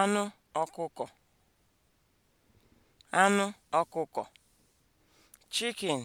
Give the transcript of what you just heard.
anụ ọkụkọ anụ ọkụkọ (chicken)